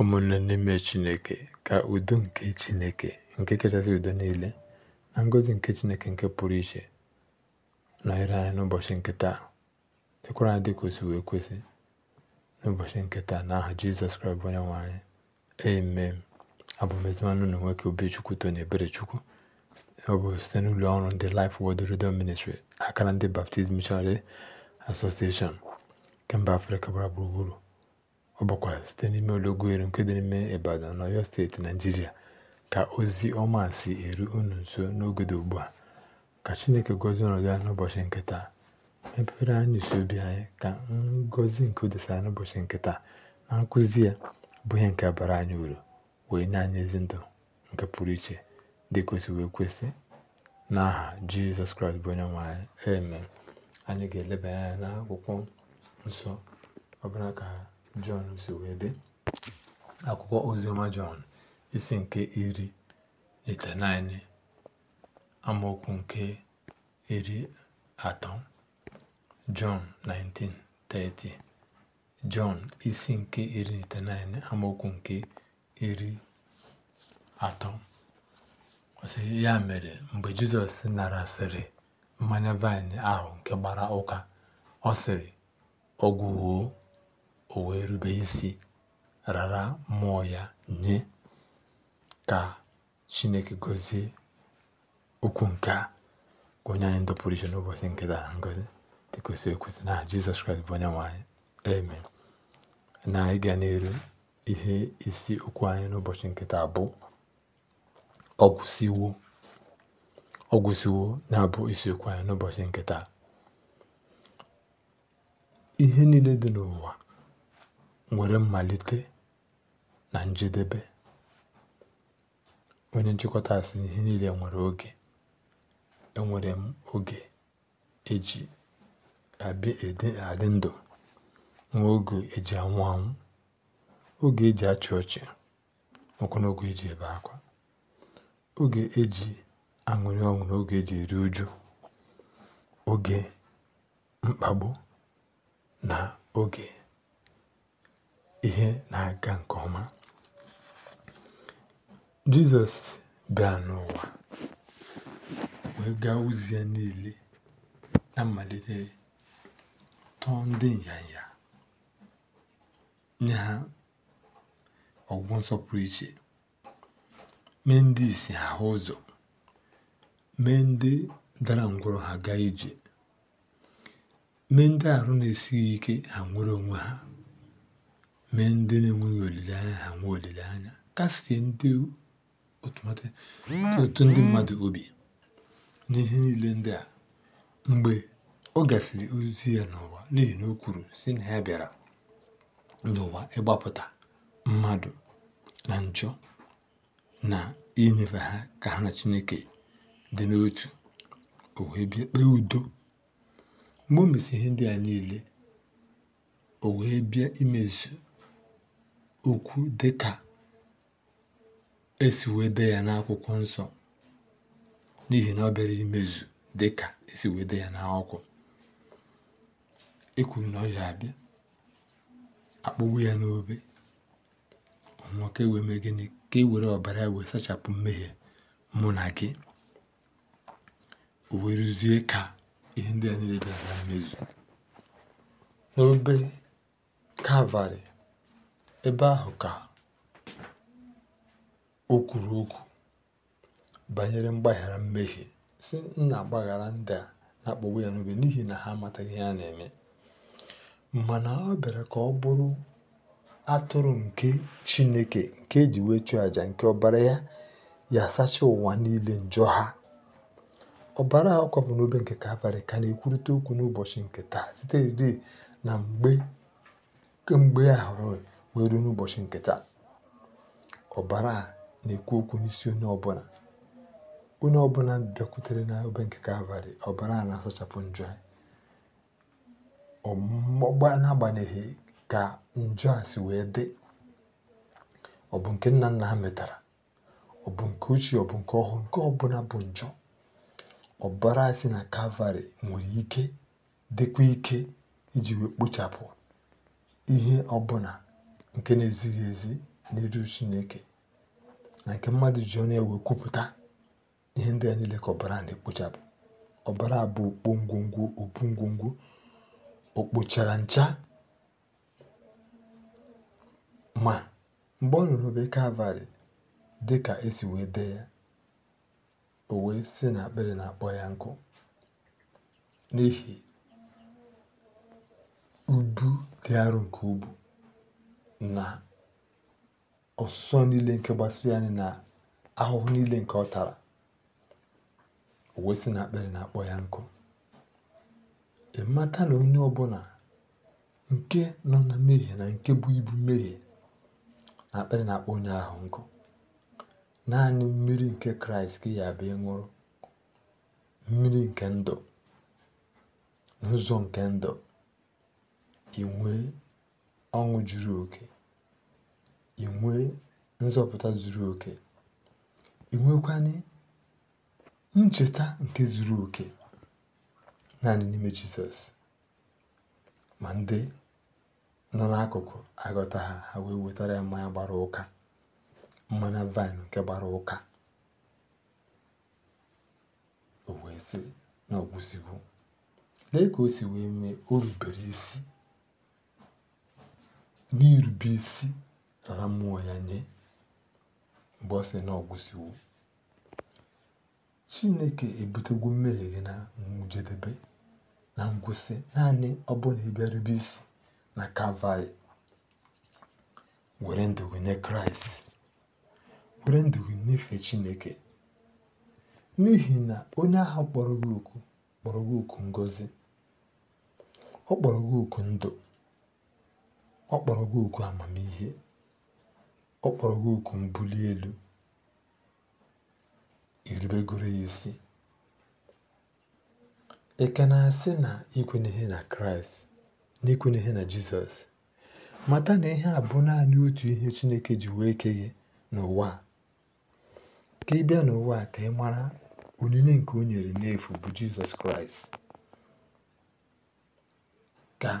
ụmụnne n'ime chineke ka udo nke chineke nke kachasị udo niile na ngọzi nke chineke nke pụrụ iche nọnyere anyị n'ụbọchị nke taa dịkwara anyị dịka osi wee kwesị n'ụbọchị nke taa aha jizọs kraịst bụ onye nwe anyị amen abụmezimana ụlọ nwoke obichukwu tony eberechukwu ọ bụ site n'ụlọ ọrụ ndị lif wod Redemption Ministry akara ndị Baptist Missionary Association kemba afrịka gbara gburugburu ọ bụkwa site n'ime olọgwueru nke dị n'ime Ibadan n'Ọyọ steeti naijiria ka ozi ọma si eru unu nso n'oge dị ugbu a ka Chineke gọzie ọnọdụ ya n'ụbọchị nke taa mepere anyị isi obi anyị ka ngọzi nke o n'ụbọchị nke taa na nkụzi ya bụ ihe nke bara anyị uru wee nye anyị ezi ndụ nke pụrụ iche dị kwesịrị ekwesị n'aha Jizọs Kraịst bụ onye nwe anyị amen anyị ga-elebanye anya n'akwụkwọ nsọ ọbụla ka Jọn si dị akwụkwọ oziọma Jọn isi nke iri itenaine amaokwu nke iri atọ Jọn 19:30 Jọn isi nke iri itenaine amaokwu nke iri atọ ọsị ya mere mgbe Jizọs narasịrị mmanya vaịn ahụ nke gbara ụka ọ sịrị ọ o wee isi rara mmụọ ya nye ka Chineke gozie okwu nke a onye anyị ndọpụrụ iche n'ụbọchị nkịta taa ngozi dịka ekwesị na Jizọs Kraịst bụ onye nwe anyị na ịga n'elu ihe isi okwu anyị n'ụbọchị nkịta bụ ọgwụsiwo ọgwụsiwo na-abụ isiokwu anyị n'ụbọchị nkịta ihe niile dị n'ụwa nwere mmalite na njedebe onye nchịkọta sị ihe niile nwere oge enwere m oge eji adị ndụ nwee oge eji anwụ anwụ oge eji achị ọchị nwekwana oge eji ebe akwa oge eji aṅụrị ọṅụ na oge eji eri uju oge mkpagbu na oge ihe na-aga nke ọma Jizọs bịa n'ụwa wee gaa ozi ya niile na mmalite tọọ ndị nyanya nye ha ọgwụ nsọpụrụ iche mee ndị isi ha ụzọ mee ndị dara ngwụrụ ha gaa ije mee ndị arụ na-esighị ike ha nwere onwe ha mee ndị na-enweghị olileanya ha nwee olileanya kasịe ndị otu ndị mmadụ obi n'ihe niile ndị a mgbe ọ gasịrị ozi ya n'ụwa n'ihi e, na o kwuru si na ya bịara n'ụwa ịgbapụta mmadụ na njọ na inyefe ha ka ha na chineke dị n'otu o bịa kpee udo mgbe o ihe ndị a niile o wee bịa imezu okwu ka esi wee dee ya n'akwụkwọ nsọ n'ihi na ọ bịara imezu ka esi wee dee ya n'akwụkwọ ekwuru na ọ ya abịa akpụgbu ya n'obe ọnwụọ ka ewee mee gịnị ka e were ọbara ya wee sachapụ mmehie mụ na gị wee rụzie ka ihe ndị a niile bịara mmezu n'obe kalvarị Ebe ahụ ka o kwuru okwu banyere mgbaghara mmehie, si nna na ndị a na-akpagbu ya n'obi n'ihi na ha amataghị ihe a na-eme.” Mana ọ bịara ka ọ bụrụ atụrụ nke Chineke nke e ji wee chụọ aja nke ọbara ya ya sachaa ụwa niile njọ ha. Ọbara a kwapụ n'obe nke Kalvarị ka na-ekwurịta okwu n'ụbọchị nke taa siterị na mgbe kemgbe ahụrụ wee ruo n'ụbọchị nke taa ọbara a na-ekwu okwu n'isi onye ọbụla onye ọbụla bịakwutere na obe nke kalvarị ọbara a na-asachapụ njọ na agbanyeghị ka njọ a si wee dị ọ bụ nke nna nna ha metara ọ bụ nke ochie ọ bụ nke ọhụrụ nke ọbụla bụ njọ ọbara si na kalvarị nwere ike dịkwa ike iji wee kpochapụ ihe ọbụla nke na-ezighị ezi n'iru Chineke na nke mmadụ ji ọnụ ewe kwupụta ihe ndị a niile ka ọbara na-ekpochapụ ọbara bụ okpo ngwongwo okpu ngwongwo o kpochara ncha ma mgbe ọ nụrụ obe Kalvarị dị ka esi wee dee ya o wee si na akpịrị na-akpọ ya nkụ n'ihi ubu dị arọ nke ubu na ọsụsọ niile nke gbasiri anyị na ahụhụ niile nke ọ tara o wee sị na akpịrị na-akpọ ya nkụ mmata na onye ọ ọbụla nke nọ na mmehie na nke bụ ibu mmehie na akpịrị na-akpọ onye ahụ nkụ naanị mmiri nke kraịst ka ya nwụrụ. mmiri nke ndụ n'ụzọ nke ndụ inwee ọṅụ juru oke inwe nzọpụta zuru oke i ncheta nke zuru oke naanị n'ime jizọs ma ndị nọ n'akụkụ agọta ha ha wee wetara ya mmanya gbara ụka mmanya vaịn nke gbara ụka o wee sị na ọgwụziwo lee ka o si wee mee o rubere isi n'irube isi nara mmụọ ya nye mgbe ọ sị na ọ chineke ebutegwu mmehie gị na njedebe na ngwụsị naanị ọ bụla ịbịarube isi na kavai were ndụ gị nye kraịst were ndụ gị chineke n'ihi na onye ahụ kpọrọ gị oku kpọrọ oku ngozi ọ kpọrọ gị oku ndụ ọ kpọrọ gị oku amamihe ọ kpọrọ gị oku mbuli elu irubegoro ya isi ị ka na-asị na ikwenyeghị na kraịst na ihe na jizọs mata na ihe a bụ naanị otu ihe chineke ji wee kee n'ụwa ka ị bịa n'ụwa ka ị mara onyinye nke o nyere n'efu bụ jizọs kraịst ka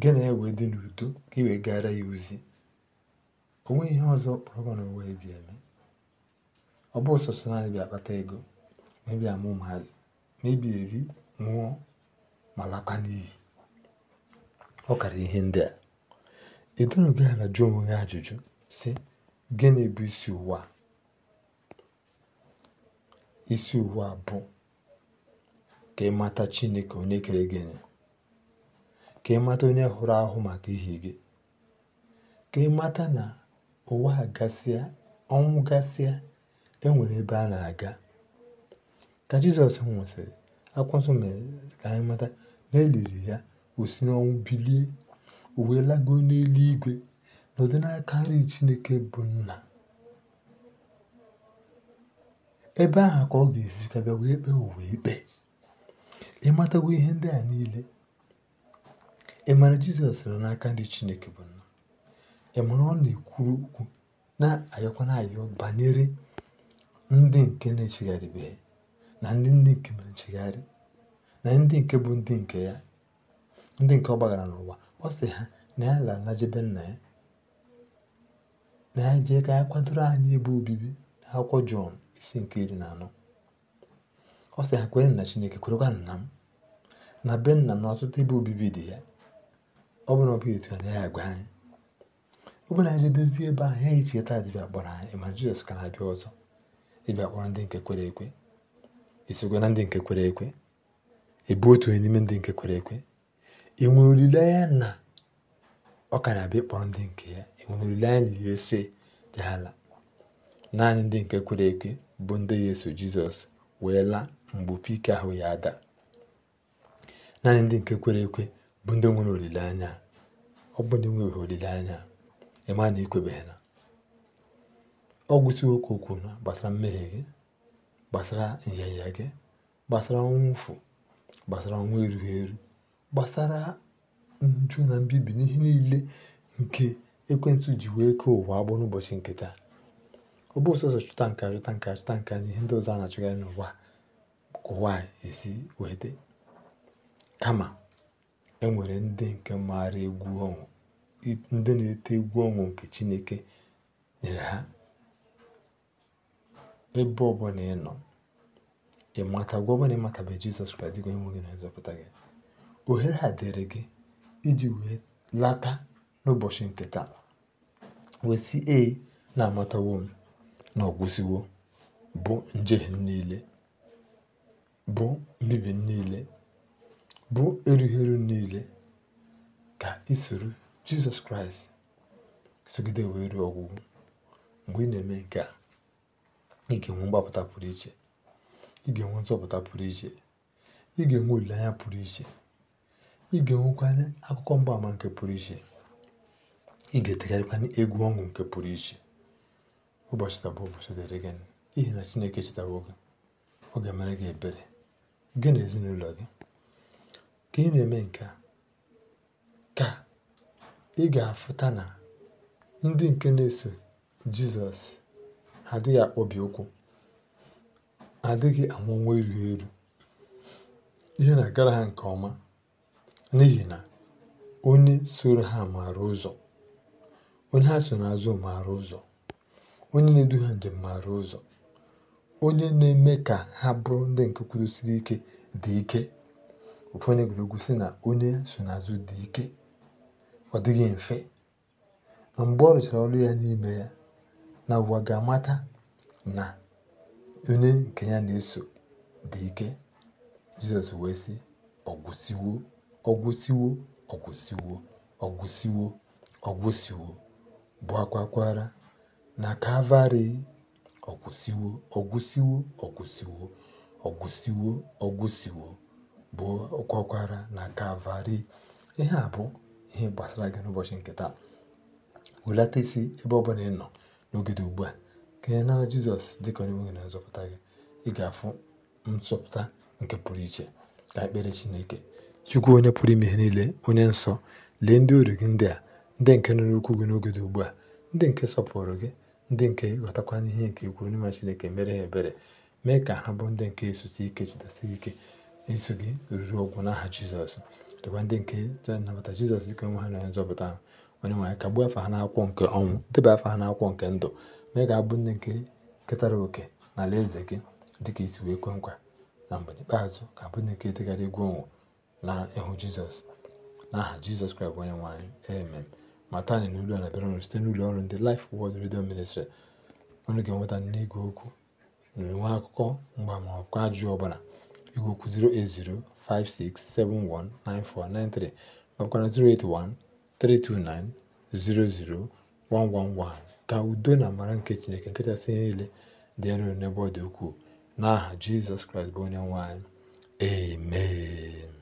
gị na e ya wee dị n'udo ka ị wee gara ya ozi o nweghị ihe ọzọ kpọrọ na n'ụwa ebi eme ọ bụ sọsọ naanị bịa akpata ego ma ịbịa amụ ụmụazị ma eri nwụọ ma lakwa n'iyi ọ kara ihe ndị a edonoghị na jụọ onwe gị ajụjụ sị gịnị bụ isi ụwa isi ụwa bụ ka ị mata Chineke onye kere gịnị ka ị mata onye hụrụ ahụ maka ihe gị ka ị mata na ụwa gasịa ọnwụ gasịa enwere ebe a na-aga ka Jizọs nwụsịrị akwụkwọ ka anyị mata na eliri ya osi n'ọnwụ bilie o wee n'eluigwe nọdụ n'aka nri Chineke bụ nna ebe ahụ ka ọ ga-esi wee kpee ụwa ikpe ihe ndị a niile Ị ma Jizọs nọ n'aka ndị Chineke bụ Nna? Ị ma ọ na-ekwuru okwu na-ayọkwa na-ayọ banyere ndị nke na-echegharịbeghị na ndị ndị nke mere nchegharị na ndị nke bụ ndị nke ya ndị nke ọ gbagara n'ụwa ọ sị ha na ya lala jebe nna ya na ya jee ka ya kwadoro anyị ebe obibi n'akwụkwọ Jọn isi nke iri na anọ ọ sị ha kwere na Chineke kwerekwa nna m na be nna na ọtụtụ ebe obibi dị ya ọ bụrụ na ọ bụghị etu a ya agwa anyị ọ na anyị dozie ebe ahụ ya echeta dịbịa kpọrọ anyị ma Jizọs ka na-abịa ọzọ ịbịa kpọrọ ndị nke kwere ekwe isogwa ndị nke kwere ekwe ebu otu onye n'ime ndị nke kwere ekwe enwere olileanya na ọ ka na-abịa ịkpọrọ ndị nke ya enwere olileanya na ihe ese dị ala naanị ndị nke kwere ekwe bụ ndị ya eso jizọs wee laa mgbe opi ike ahụ ya ada naanị ndị nke kwere ekwe bụ ndị nwere olileanya ọ bụ ndị nwebeghị olileanya ịma na ikwebeghị na ọ gwụsịghị okwu okwu na gbasara mmehie gị gbasara nyanya gị gbasara nwụfu gbasara ọnwa erughị eru gbasara nju na mbibi n'ihe niile nke ekwentị ji wee kee ụwa agbọ n'ụbọchị nketa taa ọ bụ chụta nka achụta nke achụta nke na ihe ndị ọzọ a na-achụgharị n'ụwa kụwa ụwa esi wee dị kama enwere ndị nke maara egwu ọnwụ ndị na-ete egwu ọnwụ nke chineke nyere ha ebe ọbụnà ị ịnọ ị mata gwa ị matabeghị Jizọs Kraịst dịka gị na nzọpụta gị ohere a dịrị gị iji wee lata n'ụbọchị nke taa wee sị na-amatawo m na ọgwụsiwo bụ njehie niile bụ mbibi niile bụ erughị niile ka ị soro jizọs kraịst sogide wee ruo ọgwụgwụ mgbe ị na-eme nke a ị ga-enwe mgbapụta pụrụ iche ị ga-enwe nzọpụta pụrụ iche ị ga-enwe olileanya pụrụ iche ị ga-enwekwanye akụkọ mgbaama nke pụrụ iche ị ga-etegharịkwanye egwu ọṅụ nke pụrụ iche ụbọchị taa bụ ụbọchị dịrị gị ihe na chineke chetawo gị ọ ga-emere gị ebere gị na ezinụlọ gị Ka ị na-eme nke a, ka ị ga-afụta na ndị nke na-eso Jizọs adịghị akpọbi ụkwụ, adịghị anwụ ọnwụ elu Ihe na-agara ha nke ọma n'ihi na onye soro ha maara ụzọ, onye ha so n'azụ maara ụzọ, onye na-edu ha njem maara ụzọ, onye na-eme ka ha bụrụ ndị nke kwudosiri ike dị ike. ụfọdụ egwuregwu sị na onye nsonaazụ dị ike ọ dịghị mfe na mgbe ọ rụchara ọrụ ya n'ime ya na ụwa ga-amata na onye nke ya na-eso dị ike jizọs wee sị ọgwụsiwo ọgwụsiwo ọgwụsiwo ọgwụsiwo ọgwụsiwo bụ akwakwara na kavari ọgwụsiwo ọgwụsiwo ọgwụsiwo ọgwụsiwo ọgwụsiwo gwakwara na Kalvarị ihe a bụ ihe gbasara gị n'ụbọchị nke taa welata isi ebe ọ bụla ị nọ n'oge ugbu a ka ị nara Jizọs dị ka onye nwe na azọpụta gị ị ga-afụ nzọpụta nke pụrụ iche ka ekpere Chineke Chukwu onye pụrụ ime ihe niile onye nsọ lee ndị uru gị ndị a ndị nke nọ n'okwu gị n'oge ugbu a ndị nke sọpụrụ gị ndị nke ghọtakwana ihe nke ikwuru n'ime Chineke mere ha ebere mee ka ha bụ ndị nke esusi ike chụdasị ike eso gị ruo ọgwụ n'aha jizọs dịkwa ndị nke chọrọ nnabata jizọs dịka onwe ha na onye nzọpụta ha onye nwaanyị kagbuo afọ ha n'akwụkwọ nke ọnwụ debe afọ ha n'akwụkwọ nke ndụ mee ka abụ ndị nke ketara oke na ala eze gị dịka isi wee kwe nkwa na mgbe ikpeazụ ka abụ ndị nke degara egwu ọnwụ na ịhụ jizọs n'aha jizọs kraịst onye nwaanyị amen matani na olu a na-abịara ọrụ site n'ụlọ ọrụ ndị laif wọd redio ministri ọnụ ga-enweta n'igwe okwu na nwe akụkọ mgba ma ọkụ ajụjụ ọbụla igwe okwu 08056719493 nakwa 08132900111 ka udo na amara nke Chineke nke kachasị niile dị n'ebe ọ dị ukwuu n'aha Jizọs Kraịst bụ onye nwanyị anyị amen